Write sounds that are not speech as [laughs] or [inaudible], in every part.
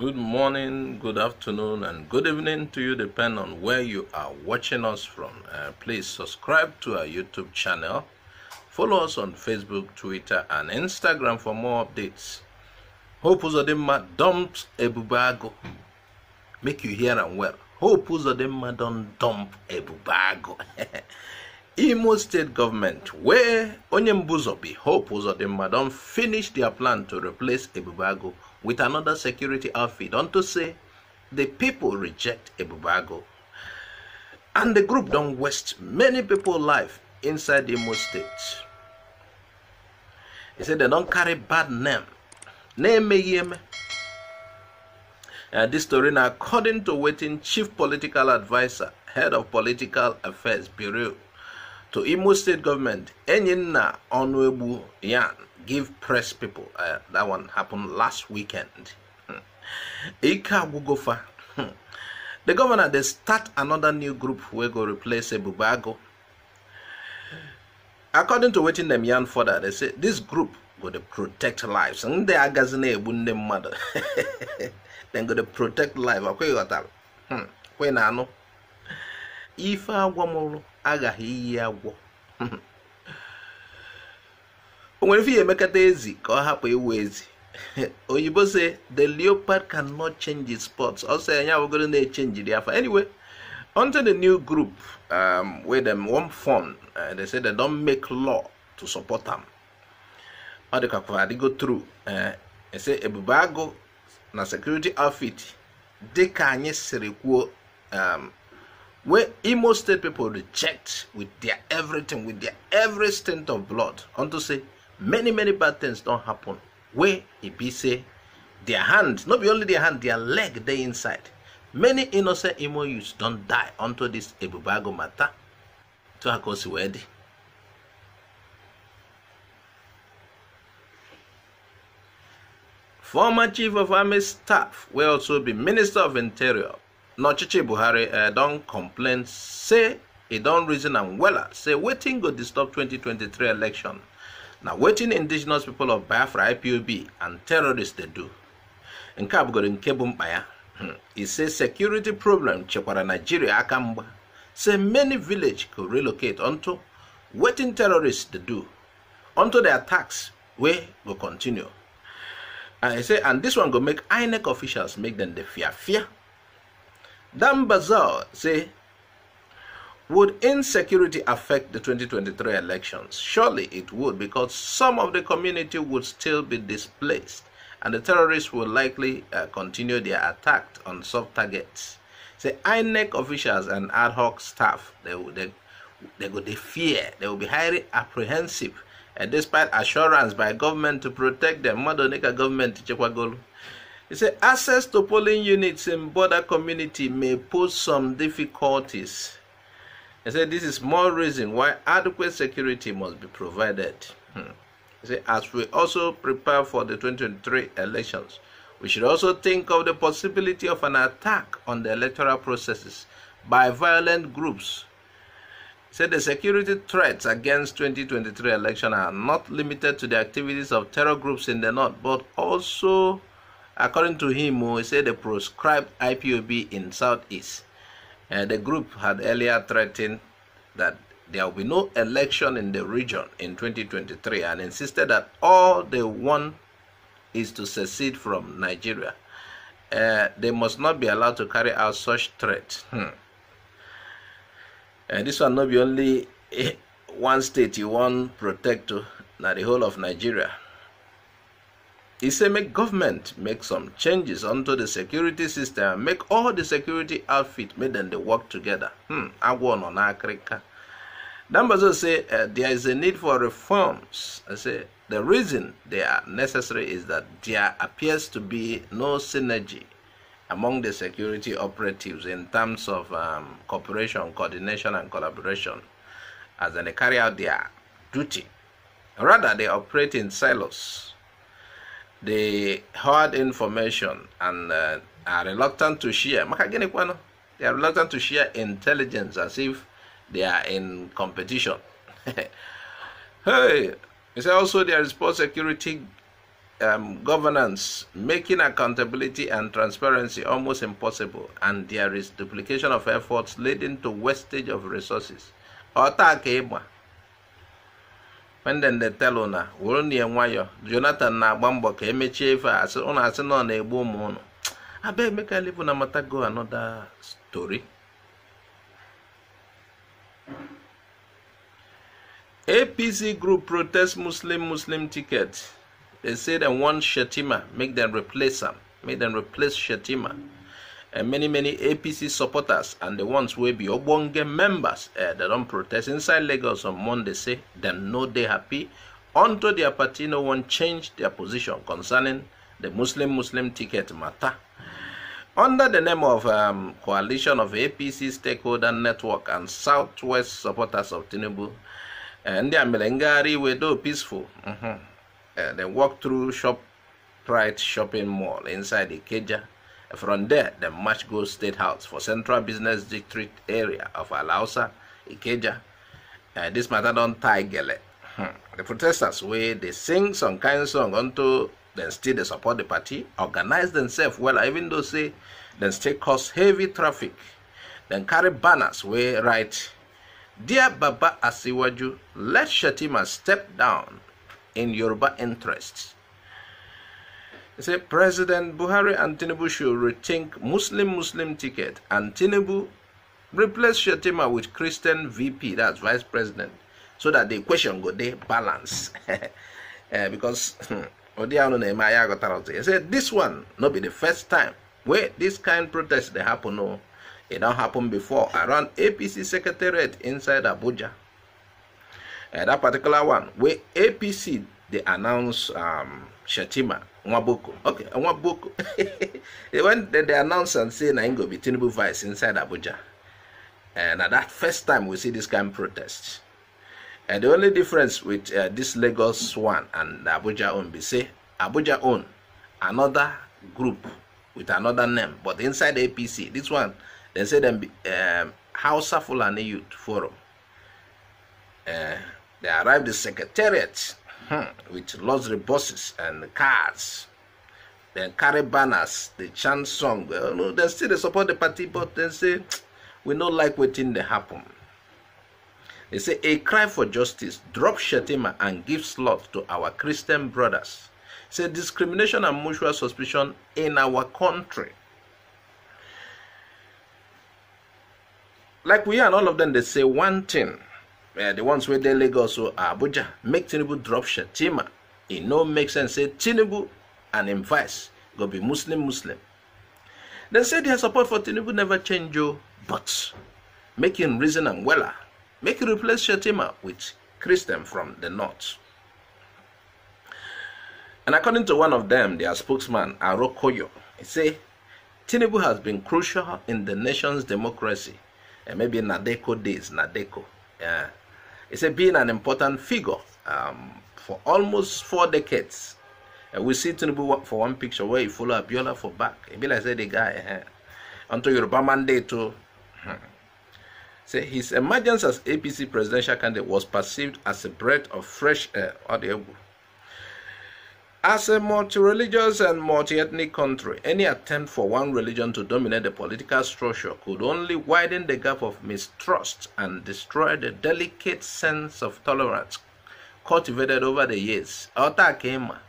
Good morning, good afternoon, and good evening to you, depending on where you are watching us from. Uh, please subscribe to our YouTube channel. Follow us on Facebook, Twitter, and Instagram for more updates. Hope Uzodinma dump Ebubago. Make you hear and well. Hope Uzodinma don't dump Ebubago. [laughs] Imo state government, where Onyembuzo be, Hope Uzodinma don't finish their plan to replace Ebubago with another security outfit to say the people reject Ebubago. And the group don't waste many people' life inside the Imo State. He said they don't carry bad name. Name yeme. Uh, this story now according to waiting chief political advisor, head of political affairs bureau to Imo State government, Enyinna Onwebu Yan give press people. Uh, that one happened last weekend. Hmm. Ika Gugofa. Hmm. The governor, they start another new group we go replace Ebubago. According to waiting them yarn further, they say this group go to protect lives. And they are gazing a mother. [laughs] Then go to protect life. Okay, you got that. Hmm. When If I want agaghi iyi agwọ o nwere ife emekata ezi ka ọ hapụ iwu ezi oyibo say the leopard cannot change its spots ọ ọsọ anya abụgoro na-echenji the afa anyway until the new group um, wey dem wan form uh, they say they don make law to support am ọ dịkakwa adịgo tru uh, ese ebube agụ na security outfit ka anyị siri kwuo um, where Imo State people reject with their everything, with their every stint of blood, to say many, many bad things don't happen. Where it be say their hands, not be only their hand, their leg they inside. Many innocent Imo youths don't die unto this Ebubago matter. To Hakosi Wedi. Former Chief of Army Staff will also be Minister of Interior n'ọchịchị buhari eh, don complain say e don reason am wella say wetin go disturb 2023 election na wetin indigenous people of biafra ipob and terrorists dey do nke a bụgoro nke bụ mkpa ya hmm. e say security problem chekwara nigeria aka mgba say many village go relocate unto wetin terrorists dey do unto the attacks wey go continue and e say and this one go make inec officials make them dey fear fear Dan say, would insecurity affect the 2023 elections? Surely it would because some of the community would still be displaced and the terrorists will likely uh, continue their attack on soft targets. Say INEC officials and ad hoc staff, they, they, they, they fear, they will be highly apprehensive uh, despite assurance by government to protect them, Madonika government, Chekwagolu. He said, access to polling units in border community may pose some difficulties. He said, this is more reason why adequate security must be provided. Hmm. He said, as we also prepare for the 2023 elections, we should also think of the possibility of an attack on the electoral processes by violent groups. He said the security threats against 2023 election are not limited to the activities of terror groups in the north, but also According to him, he said the proscribed IPOB in Southeast, uh, the group had earlier threatened that there will be no election in the region in 2023 and insisted that all they want is to secede from Nigeria. Uh, they must not be allowed to carry out such threats. Hmm. Uh, this will not be only [laughs] one state you want protect, to, not the whole of Nigeria. He said, make government make some changes onto the security system. Make all the security outfit, make them they work together. Hmm, I won on Africa. Dambazo say, uh, there is a need for reforms. I say, the reason they are necessary is that there appears to be no synergy among the security operatives in terms of um, cooperation, coordination, and collaboration as they carry out their duty. Rather, they operate in silos they hide information and uh, are reluctant to share. They are reluctant to share intelligence as if they are in competition. [laughs] hey, it's also there is poor security um, governance, making accountability and transparency almost impossible, and there is duplication of efforts leading to wastage of resources. Ọta pendende telu na were na ya nwayọ jonathan na-agba mbọ ka emechie ife ụnụ asị na na-egbu ụmụ ụnụ aba emeka live na matago anoda story apc group protest muslim muslim ticket they say they want shetima make them replace am make them replace shetima and many many APC supporters and the ones wey be ogbonge members uh, eh, that don protest inside Lagos on Monday say them no dey happy unto their party no wan change their position concerning the Muslim Muslim ticket matter. Under the name of um, Coalition of APC Stakeholder Network and Southwest Supporters of Tinubu, eh, ndị uh, Melengari were do peaceful. Mm -hmm. uh, they walk through shop, Pride shopping mall inside the Ikeja. From there, the match goes State House for Central Business District area of Alausa, Ikeja. Uh, this matter don't tie gele. Hmm. The protesters, where they sing some kind of song unto then still they support the party, organize themselves well, even though say then still cause heavy traffic, then carry banners where right. Dear Baba Asiwaju, let Shatima step down in Yoruba interests he said President Buhari and Tinubu should rethink Muslim Muslim ticket and Tinubu replace Shatima with Christian VP, that's vice president, so that the equation go [laughs] eh, hmm, they balance. uh, because he said this one not be the first time where this kind protest they happen. No, it not happened before around APC secretariat inside Abuja. Uh, that particular one where APC they announce um, Shatima Nwaboko. Okay, Nwaboko. [laughs] when they, they announced and say I'm going to be Tinubu vice inside Abuja, and eh, at that first time we see this kind of protest. And eh, the only difference with uh, this Lagos one and Abuja own be say Abuja own another group with another name, but inside the APC, this one they say them um, Hausa Fulani Youth Forum. Uh, they arrived the secretariat -hmm. with luxury buses and cars. They carry banners, they chant song. Well, no, they still they support the party, but they say we don't like waiting they happen. They say a cry for justice, drop Shetima and give slot to our Christian brothers. Say discrimination and mutual suspicion in our country. Like we and all of them, they say one thing. Eh, the ones where they Lagos or ah, Abuja, make Tinubu drop Shatima. It no make sense. Say Tinubu and him vice go be Muslim Muslim. They say their support for Tinubu never change, you, oh, but make reason and weller. Make you replace Shatima with Christian from the north. And according to one of them, their spokesman, Arokoyo, he say, Tinubu has been crucial in the nation's democracy. And maybe Nadeko days, Nadeko. Yeah. It's a, been an important figure um, for almost four decades. Uh, we see Tinubu for one picture where he follow Abiola for back. Abiola said the guy uh, eh, eh. until Yoruba mandate too. Oh. Hmm. [laughs] Say his emergence as APC presidential candidate was perceived as a breath of fresh air. Uh, As a multi-religious and multi-ethnic country, any attempt for one religion to dominate the political structure could only widen the gap of mistrust and destroy the delicate sense of tolerance cultivated over the years. Otakema.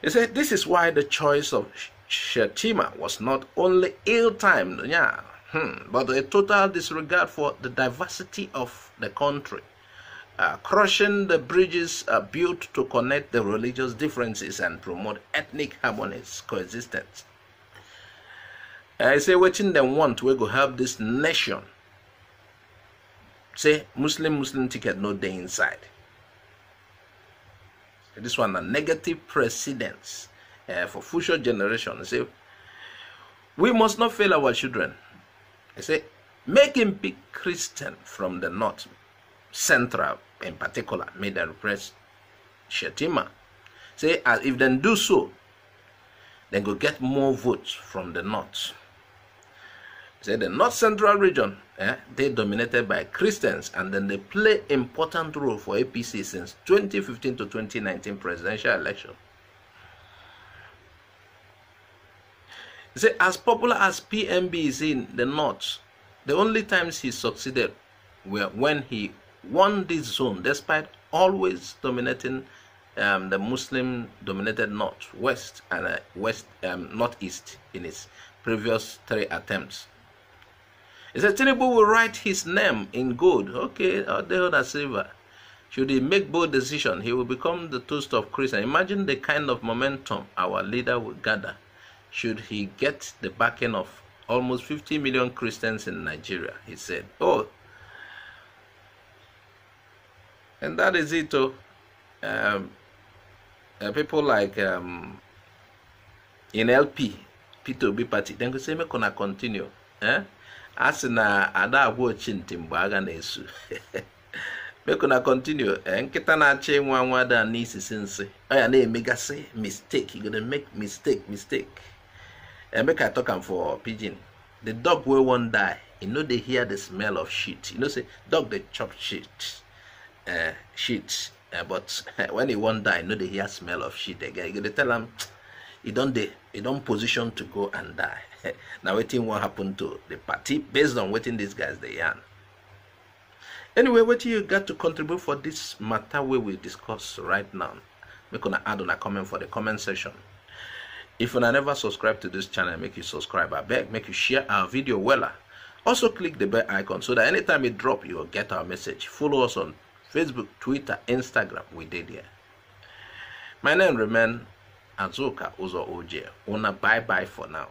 He said this is why the choice of Shetima was not only ill-timed, yeah, hmm, but a total disregard for the diversity of the country. uh, crushing the bridges uh, built to connect the religious differences and promote ethnic harmonies coexistence. I say what in the want we go help this nation. Say Muslim Muslim ticket no day inside. This one a negative precedence uh, for future generations. Say we must not fail our children. I say make him be Christian from the north Central in particular made a request Shetima. Ah. Say as if they do so, then go get more votes from the north. Say the north central region, eh, they dominated by Christians and then they play important role for APC since 2015 to 2019 presidential election. Say as popular as PMB is in the north, the only times he succeeded were when he won this zone despite always dominating um, the Muslim dominated north, west, and uh, west um, northeast in its previous three attempts. He said Tinubu will write his name in gold, okay, or the other silver. Should he make bold decision, he will become the toast of Christian. Imagine the kind of momentum our leader will gather should he get the backing of almost 50 million Christians in Nigeria, he said. Oh, and that is it. Oh, um, uh, people like um, in LP, P2B party, then go say me gonna continue. Eh? As in uh, a agwa ochi ntị mgbe agha na-esu meko na [laughs] continue eh, nkịta na-achọ ịnwa nwa da n'isisi nsị ọ oh, ya na-emegasị mistake you gonna make mistake mistake eh, make I talk am for pigeon. the dog will wan die You e know they hear the smell of shit you know say dog they chop shit uh, shit uh, but [laughs] when he want die, know they hear smell of shit again you gotta tell him [tsk] he don't they he don't position to go and die [laughs] now waiting what happened to the party based on waiting these guys they are. anyway what you got to contribute for this matter we will discuss right now make gonna add on a comment for the comment section if you never subscribe to this channel make you subscribe i beg make you share our video well also click the bell icon so that anytime it drop you'll get our message follow us on Facebook, Twitter, Instagram, we did here. My name remain Azuka Uzo Oje. Una bye bye for now.